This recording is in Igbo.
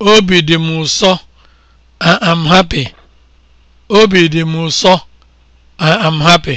Obi dị m ụsọ, I am m ụsọ, happy.